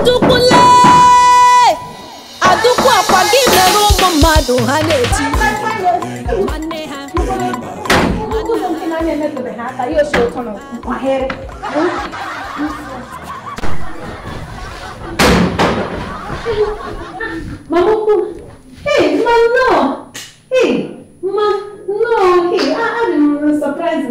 adụkwụla adụkwụ akwa gị mere ụmụ mmadụ ha na-eti nwanne ha Mama, hey, mama, no, hey, mama, no, hey, I am surprised,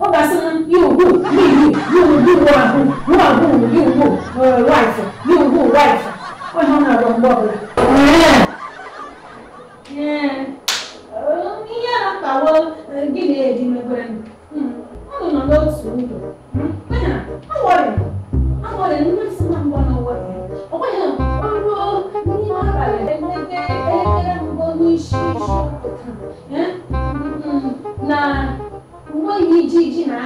ihe a na-akpawo gị na-eji megwere ọ nọ n'otu ndụ awọrị awọrị nne si na mgbe n'ụwọrị ọkwenye ọrụ n'ime abalị emete elekere mbụ n'isi isi na uwe yi ji ji na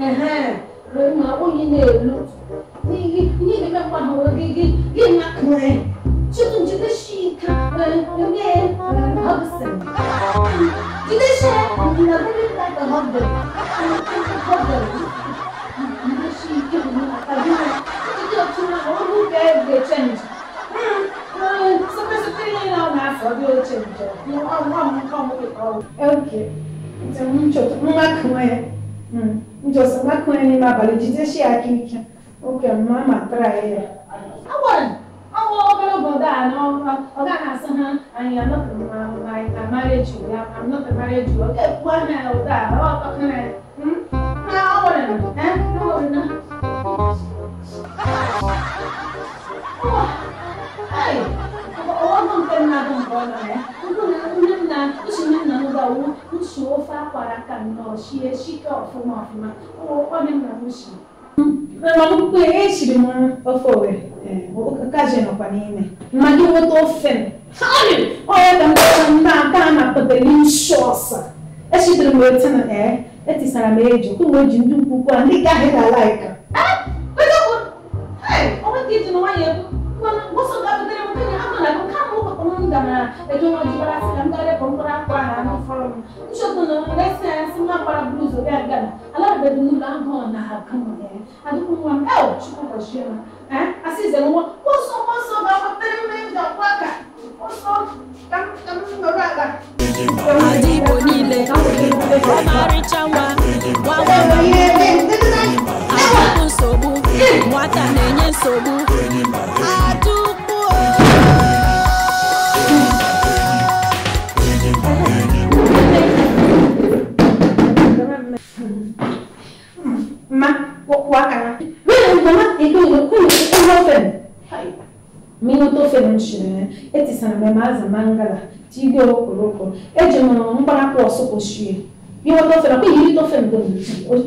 ada ma onye na-elu n'ihi na-emekwa ha gị gị gị na kụrụ Și atunci, deși mie hapsen. Deși la mine dacă hapsen. Hapsen. Deși că nu acabim. Deși că nu omul de decenți. Să presupune la o masă de decenți. Eu am am am am. Ok. Înțeleg niciodată. Numai cum e. Niciodată. Numai cum e nima baligize și aici. Ok, mama traie. Awan. oh, about that. No, I got son, and I'm not like I married you. I'm not married you. Okay, one night of that. Oh, can I? Hmm? I want Eh? No, no. Hey, ọwọ́ nǹkan náà dùn bọ́ lọ rẹ̀. Nǹkan náà oṣù mẹ́rin náà ló bá owó oṣù ó fà pàràkà náà ṣe é ṣíkà ọ̀fun ọ̀fun máa. Ó wọ́pọ̀ nínú àwọn oṣù. maluco ești, mă, o fowe. Ka jeno kwa nini? Mali woto fen. Hani, oya da mtanda kana patelin shosa. Eshi drimwe tana eh, eti sana mejo, kuwe jindu kukwa, ndi gahe da like. tipo imagina, né? Assim, é uma, posso, posso, dar peraí, mesmo, já, placa, posso, estamos, estamos, meu lugar. Adi bonile, Omari Chawa, Wawa, sanamaza mangala tige okoloko eje mwana mkpanakwụ ọsụkwụchie não tofe nakwa ihe não mgbe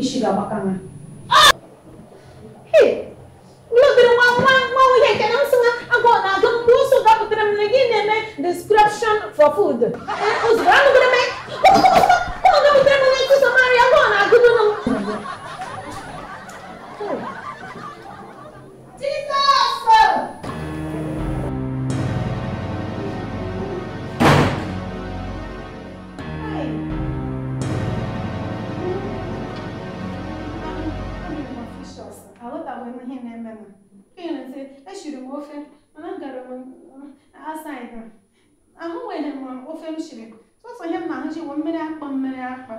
isi ga-agbaka ha Lotere nwa nwa nwa nwunye nke na nsị agụ na-agụ mgbe ụsụ dapụtara m na gị na-eme description for food. Ozugbo anụgara m siri m ofe mana gara m asaịd ahụ nwere m ofe m siri sọsọ na-ahụ ji bụ mmiri akpa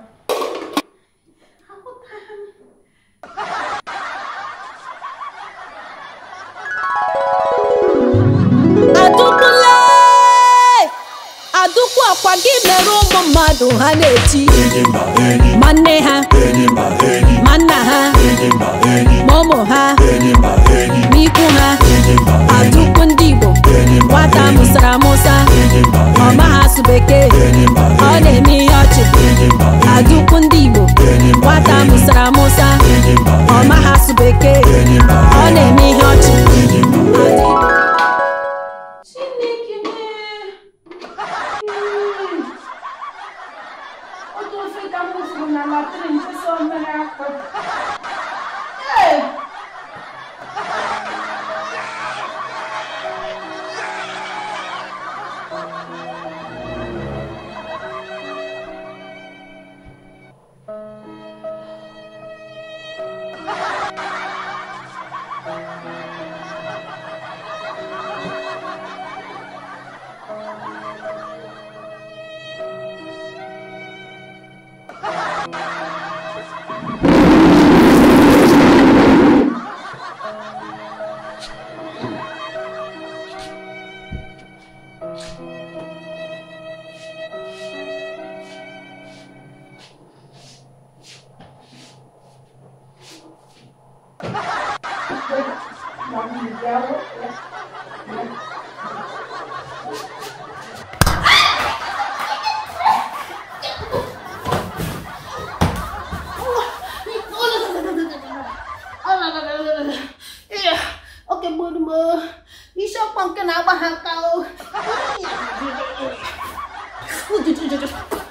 adụkwu akwa gị mere ụmụ mmadụ ha na-eti Iya, Isok pang kenapa kau? Udah, udah, udah.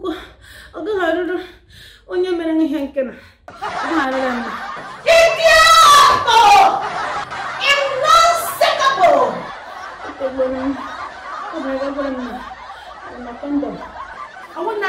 aku aga haruru onye mere m ihe nke na agharịra m Arema kondom, awon na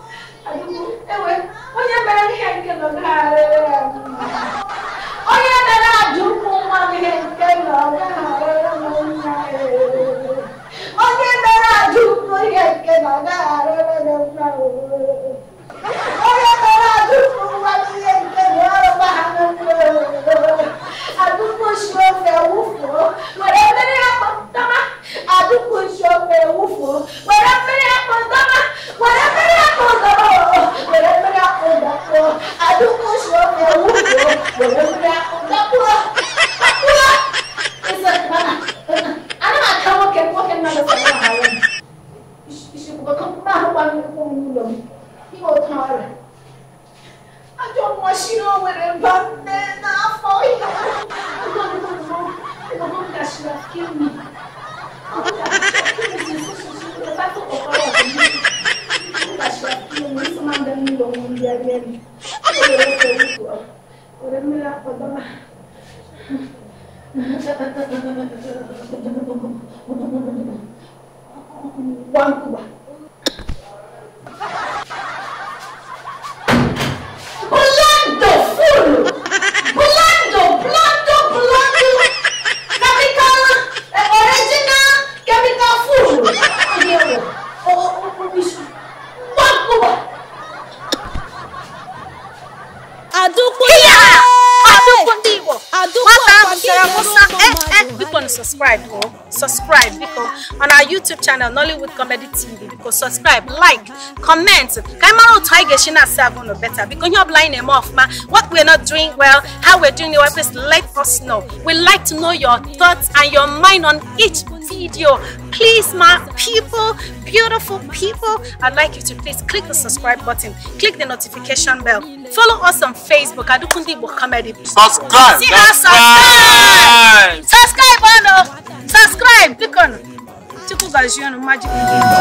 onye mere ihe nke nọ onye mere ajụ nwa m ihe nke nọ onye mere ajụ ụkwụ ihe nke nọ na-arịrị nangyari. Orang melapor, Mama. subscribe because on our youtube channel nollywood comedy tv biko subscribe like comment ka anyị mara otu anyị ga-esi na-asa agụ ụnụ beta biko ihe ọbụla anyị what we're not doing well how we're are doing well please let us know we like to know your thoughts and your mind on each video please my people beautiful people i'd like you to please click the subscribe button click the notification bell follow us on facebook adukundi igbo comedy subscribe see us subscribe subscribe subscribe click on Chiku Gajiyanu Magic.